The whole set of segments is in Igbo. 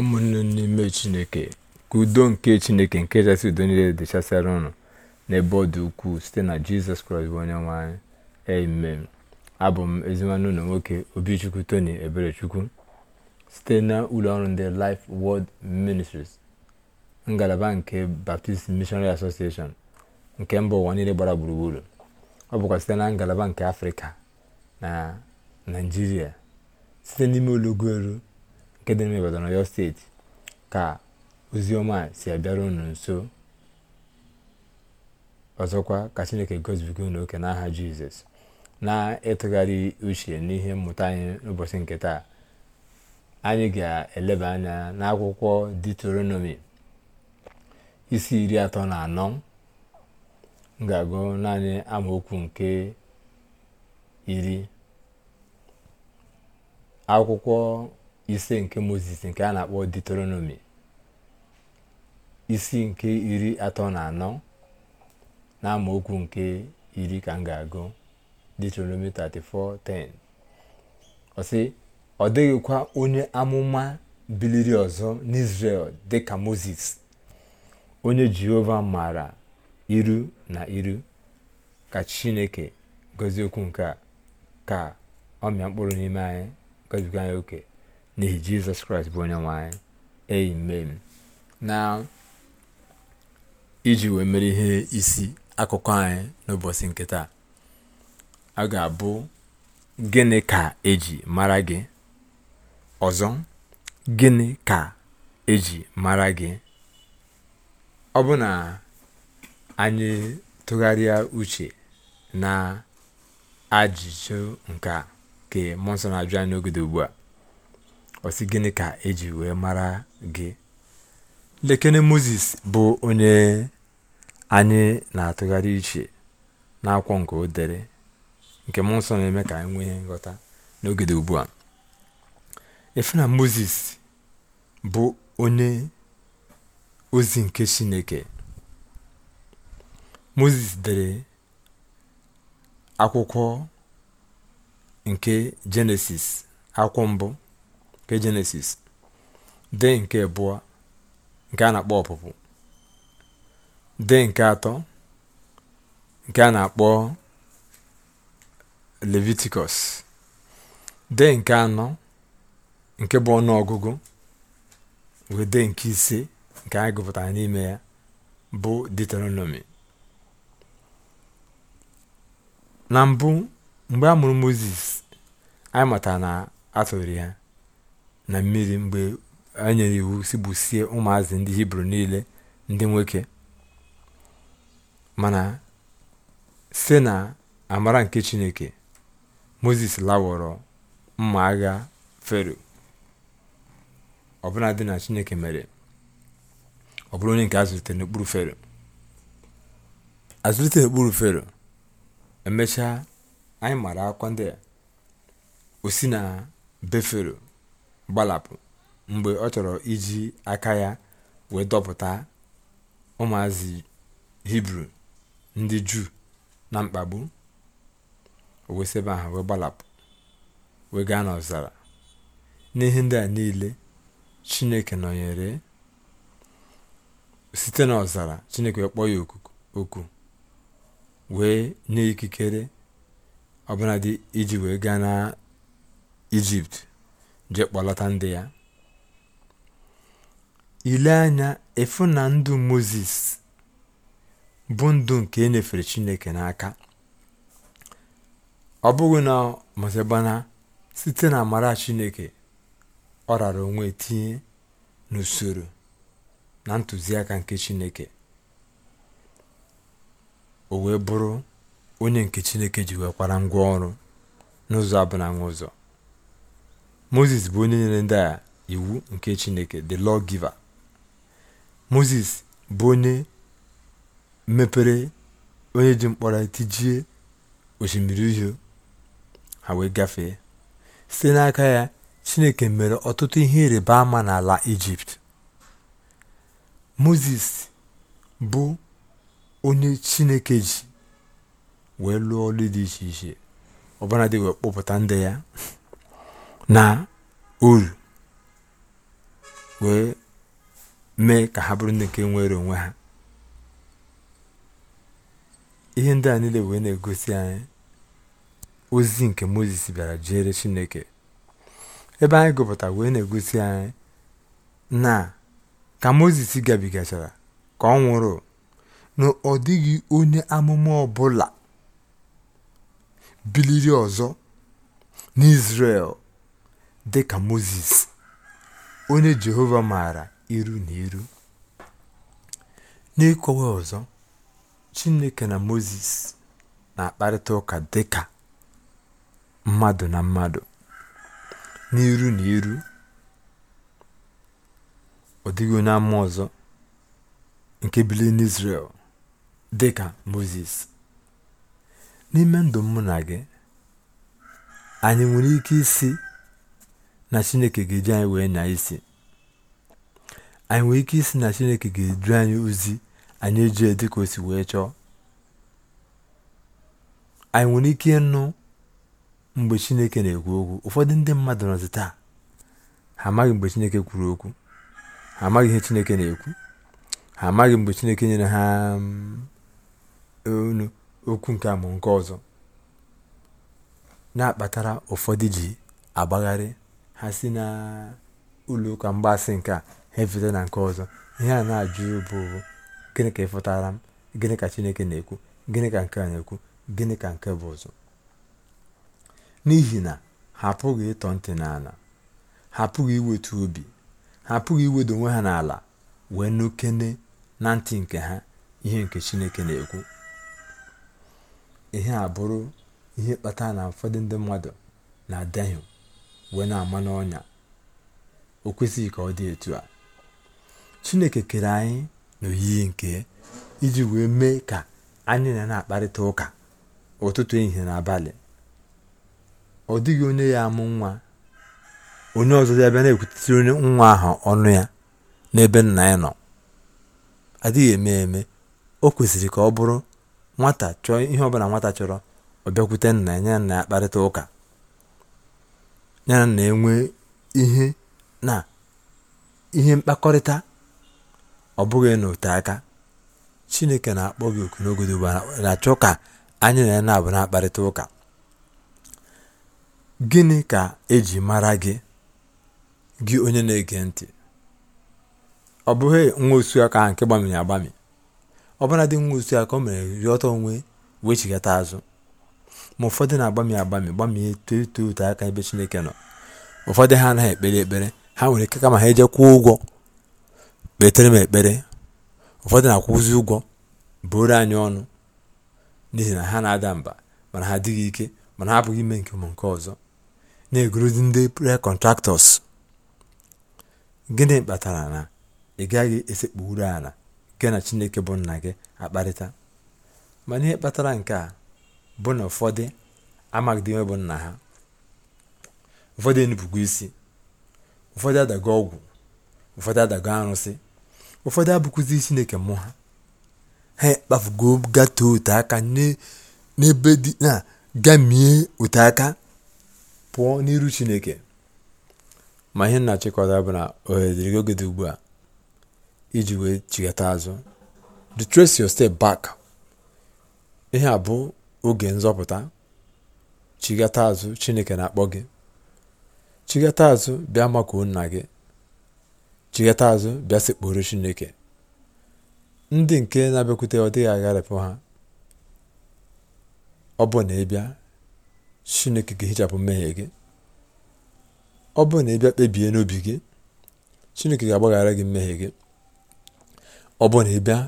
ụmụnne n'ime chineke ka udo nke chineke nke kachasị udo niile dịchasịara ụnụ n'ebe ọ dị ukwuu site na jizọs kraịst bụ onye nwanyị anyị amen abụ m ezimanụ ụlọ nwoke obichukwu tony eberechukwu site na ụlọ ọrụ ndị life world ministries ngalaba nke baptist missionary association nke mba ụwa niile gbara gburugburu ọ bụkwa site na ngalaba nke afrịka na naijiria site n'ime olugoro nke dị n'ime steeti ka ozioma si abịara unu nso ọzọkwa ka chineke gozibiga unu oke n'aha jizọs na-ịtụgharị uche n'ihe mmụta anyị n'ụbọchị nke taa anyị ga-eleba anya n'akwụkwọ Deuteronomy isi iri atọ na anọ ngagụ agụ naanị amaokwu nke iri akwụkwọ ise nke moses nke a na-akpọ deuteronomi isi nke iri atọ na anọ na amaokwu nke iri ka m ga-agụ deuteronomi 34:10 ọ sị ọ dịghịkwa onye amụma biliri ọzọ n'isrel dịka moses onye jehova maara iru na iru ka chineke gozie okwu nke a ka ọmịa mkpụrụ n'ime anyị goziga anyị oke n'ihi jizọs kraịst bụ onye nwanyị amen na iji wee mere ihe isi akụkọ anyị n'ụbọchị nke taa a ga-abụ gịnị ka eji mara gị ọzọ gịnị ka eji mara gị ọ bụ na anyị tụgharịa uche na ajụjụ nke ka mmụọ nsọ na-ajụ anyị n'ogede ugbu a ọsị gịnị ka eji wee mara gị lekene moses bụ onye anyị na-atụgharị iche n'akwọ nke o nke mmụọ nsọ na-eme ka anyị nwee nghọta n'oge ugbu a efe na moses bụ onye ozi nke chineke moses dere akwụkwọ nke jenesis akwọ mbụ nke jenesis dee nke abụọ nke a na-akpọ ọpụpụ de nke atọ nke a na-akpọ leviticus dee nke anọ nke bụ ọnụọgụgụ wee de nke ise nke anyị gụpụtara n'ime ya bụ deuteronomy na mbụ mgbe a mụrụ moses anyị matara na a ya na mmiri mgbe a nyere iwu sigbusie ụmụazị ndị hibru niile ndị nwoke mana site na amara nke chineke moses lawọrọ mma agha fero ọbụla dị na chineke mere ọ onye nke azụlitere n'okpuru fero azụlite n'okpuru fero emechaa anyị mara akwa ndị osi o si na be fero gbalapụ mgbe ọ chọrọ iji aka ya wee dọpụta ụmụazị hibru ndị juu na mkpagbu o ahụ wee gbalapụ wee gaa n'ọzara n'ihe ndị a niile chineke nọnyere site n'ọzara chineke kpọọ ya oku wee nye ikikere ọbụladị iji wee gaa na ijipt jee kpọlọta ndị ya ile anya efu na ndụ moses bụ ndụ nke e chineke n'aka ọ bụghị na mosebana site na amara chineke ọ rara onwe tinye n'usoro na ntụziaka nke chineke o wee bụrụ onye nke chineke ji wekwara ngwa ọrụ n'ụzọ na n'ụzọ moses bụ onye nyere ndị a iwu nke chineke the law giver moses bụ onye mepere onye ji mkpọrọ tijie osimiri uhie ha wee gafee site n'aka ya chineke mere ọtụtụ ihe ịrịba ama n'ala ijipt moses bụ onye chineke ji wee lụọ ọrụ dị iche iche ọbụla wee kpọpụta ndị ya na uru wee mee ka ha bụrụ ndị nke nwere onwe ha ihe ndị a niile wee na-egosi anyị ozi nke moses bịara jere chineke ebe anyị gụpụta wee na-egosi anyị na ka moses gabigachara ka ọ nwụrụ na ọ dịghị onye amụma ọbụla biliri ọzọ n'izrel dị ka Mozis, onye Jehova maara iru na iru. N'ịkọwa ọzọ, Chineke na Mozis na-akparịta ụka dị ka mmadụ na mmadụ, n'iru na iru. Ọ dịghị onye ama ọzọ nke bili n'Izrel dị ka Mozis. N'ime ndụ mụ na gị, anyị nwere ike isi na chineke ga-eji anyị wee na isi anyị nwere ike isi na chineke ga-edu anyị ozi anyị eji dịka o si wee chọọ anyị nwere ike ịnụ mgbe chineke na-ekwu okwu ụfọdụ ndị mmadụ nọzi taa ha amaghị mgbe chineke kwuru okwu ha amaghị ihe chineke na-ekwu ha amaghị mgbe chineke nyere ha um, onu okwu nke amụ nke ọzọ na-akpatara ụfọdụ ji agbagharị ha si na ụlọụka mgbasị nke a ha efeta na nke ọzọ ihe a na-ajụ bụ gịnị ka ịfụtara m gịnị ka chineke na-ekwu gịnị ka nke a na-ekwu gịnị ka nke bụ ụzọ n'ihi na ha apụghị ịtọ ntị n'ala ha apụghị iwetu obi ha apụghị iwedo onwe ha n'ala wee nụkene na ntị nke ha ihe nke chineke na-ekwu ihe a bụrụ ihe kpatara na ụfọdụ ndị mmadụ na-adahie wee na-ama n'ọnya o kwesịghị ka ọ dị etu a chineke kere anyị n'oyiyi nke iji wee mee ka anyị na na-akparịta ụka ụtụtụ ehihie na abalị ọ dịghị onye ya amụ nwa onye ọzọ ya bịa na-ekwutere onye nwa ahụ ọnụ ya n'ebe nna ya nọ adịghị eme eme o kwesịrị ka ọ bụrụ nwata chọọ ihe ọbụla nwata chọrọ ọ bịakwute nna ya nye nna ya kparịta ụka ya na-enwe ihe na ihe mkpakọrịta ọ bụghị n'ote aka chineke na-akpọ gị oku n'ogodo na-achọ ka anyị na ya na-abụ na-akparịta ụka gịnị ka eji mara gị gị onye na-ege ntị ọ bụghị nwa osu aka nke gbamiri agbami ọbụla dị nwa osu aka o mere ọtọ onwe wee chigata azụ ma ụfọdụ na-agbami agbami gbamie too etoo ote aka ebe Chineke nọ ụfọdụ ha anaghị ekpere ekpere ha nwere ike kama ha eje kwụọ ụgwọ kpetere m ekpere ụfọdụ na-akwụzi ụgwọ bụrụ anyị ọnụ n'ihi na ha na-ada mba mana ha adịghị ike mana ha abụghị ime nke ụmụ nke ọzọ na-egorozi ndị prayer kọntraktọs gịnị kpatara na ị gaghị esekpuru ala gị na chineke bụ nna gị akparịta mana ihe kpatara nke a bụ na ụfọdụ amaghịdị bụ nna ha ụfọdụ enupụgo isi ụfọdụ adago ọgwụ ụfọdụ adago arụsị ụfọdụ abụkụzi chineke mmụọ ha ha kpafugo gata ote aka n'ebe dị na gamie ote aka pụọ n'iru chineke ma ihe na-achịkọta bụ na ohere oge dị ugbu a iji wee chighata azụ retrace your step back ihe a bụ oge nzọpụta chigata azụ chineke na-akpọ gị chigata azụ bịa makuo nna gị chigata azụ bịa chineke ndị nke na-abịakwute ọ dịghị agharịpụ ha ọ bụ na ịbịa chineke ga-ehichapụ mmehie gị ọ bụ na ịbịa kpebie n'obi gị chineke ga-agbaghara gị mmehie gị ọ bụ na ịbịa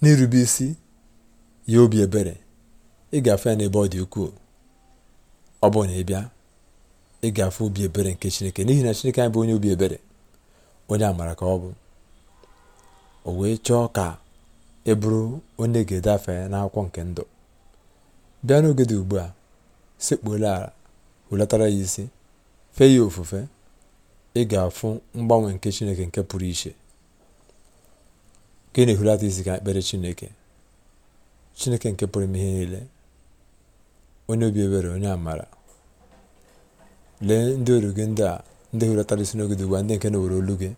n'irube isi ya obi ebere ịgafe ya n'ebe ọ dị ukwuu ọ bụrụ na ị bịa ịgafe obi ebere nke chineke n'ihi na chineke anyị bụ onye obi ebere onye amara ka ọ bụ o wee chọọ ka ị e bụrụ onye ga-edafe n'akwụkwọ nke ndụ bịa n'oge dị ugbu a sekpuola ala hulatara ya isi fee ya ofufe ị ga-afụ mgbanwe nke chineke nke pụrụ iche ka ị na-ehulata isi ka ekpere chineke chineke nke pụrụ ime ihe niile onye obi ebere onye amara lee ndị oru gị ndị a ndị hụrọtara isi n'oge dị ndị nke na-ewere olu gị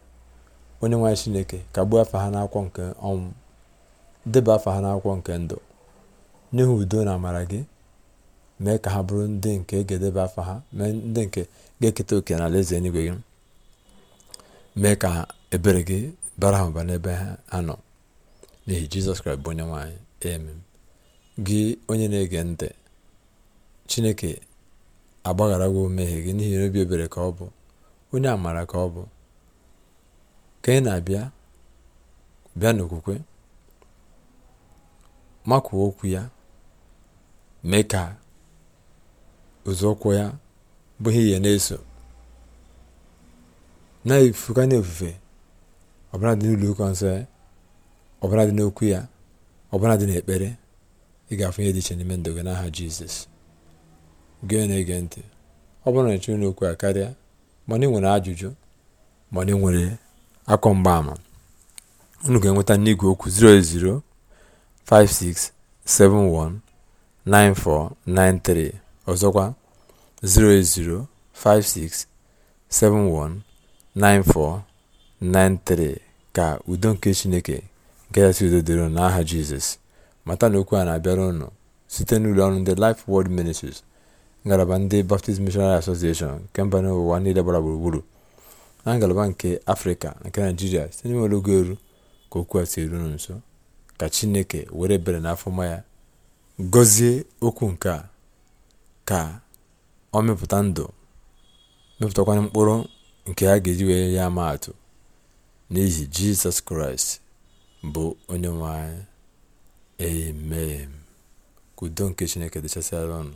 onye nwanyị chineke gbuo afọ ha n'akwụkwọ nke ọnwụ deba afọ ha n'akwụkwọ nke ndụ nye udo na amara gị mee ka ha bụrụ ndị nke ga afa afọ ha mee ndị nke ga-eketa oke na alaeze eluigwe gị mee ka ebere gị bara ha ụba n'ebe ha nọ n'ihi jizọs kraịst bụ onye nwaanyị amen gị onye na-ege ntị chineke agbagharawo mmehie gị n'ihi na obi ebere ka ọ bụ onye amara ka ọ bụ ka ị na-abịa bịa n'okwukwe makwuo okwu ya mee ka ụzọụkwụ ya bụ ihe na-eso na-efuga n'ofufe ọbara dị n'ụlọ ụka nsọ ya ọbara dị n'okwu ya ọbara dị n'ekpere ị ga-afụ dị iche n'ime ndụ gị n'aha jizọs gee na-ege ntị ọ bụrụ na ị n'okwu a karịa mana nwere ajụjụ mana nwere akọ mgbaama unu ga-enweta n'igwe okwu 08056719493 ọzọkwa 08056719493 ka udo nke chineke nke kasị udo dịrị n'aha jizọs mata na okwu a na-abịara ụnụ site n'ụlọ ọrụ ndị Life Word Ministries ngalaba ndị baptist missionary association nke mba n'ụwa niile gbara gburugburu na ngalaba nke afrịka nke naijiria site n'ime ologo eru ka okwu a si eruru nso ka chineke were bere n'afọma ya gọzie okwu nke a ka ọ mepụta ndụ mepụtakwanye mkpụrụ nke a ga-eji wee ya ama atụ n'ihi jizọs kraịst bụ onye nwe anyị udo nke chineke dịchasịara ọnụ